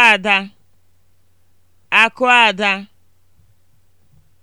akụada akụada